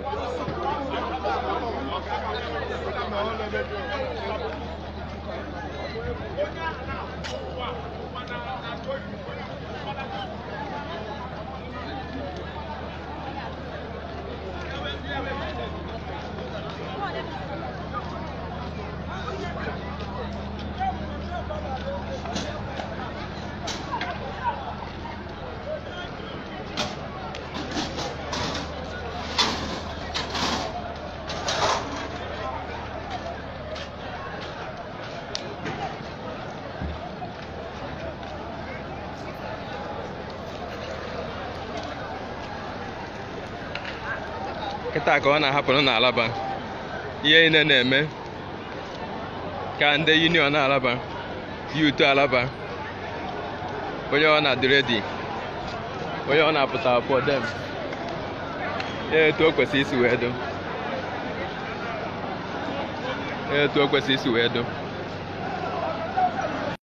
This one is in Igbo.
Thank you. kịta ka ọ na ahapụ n'alaba ihe niile na-eme ka ndị union alaba yutu alaba onye ọ na-adị dị, onye ọ na-apụta for dem etu o kwesịrị isi wee do etu o kwesịrị isi wee dụ.